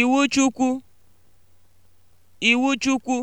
Iwu Chukwu. Iwu Chukwu.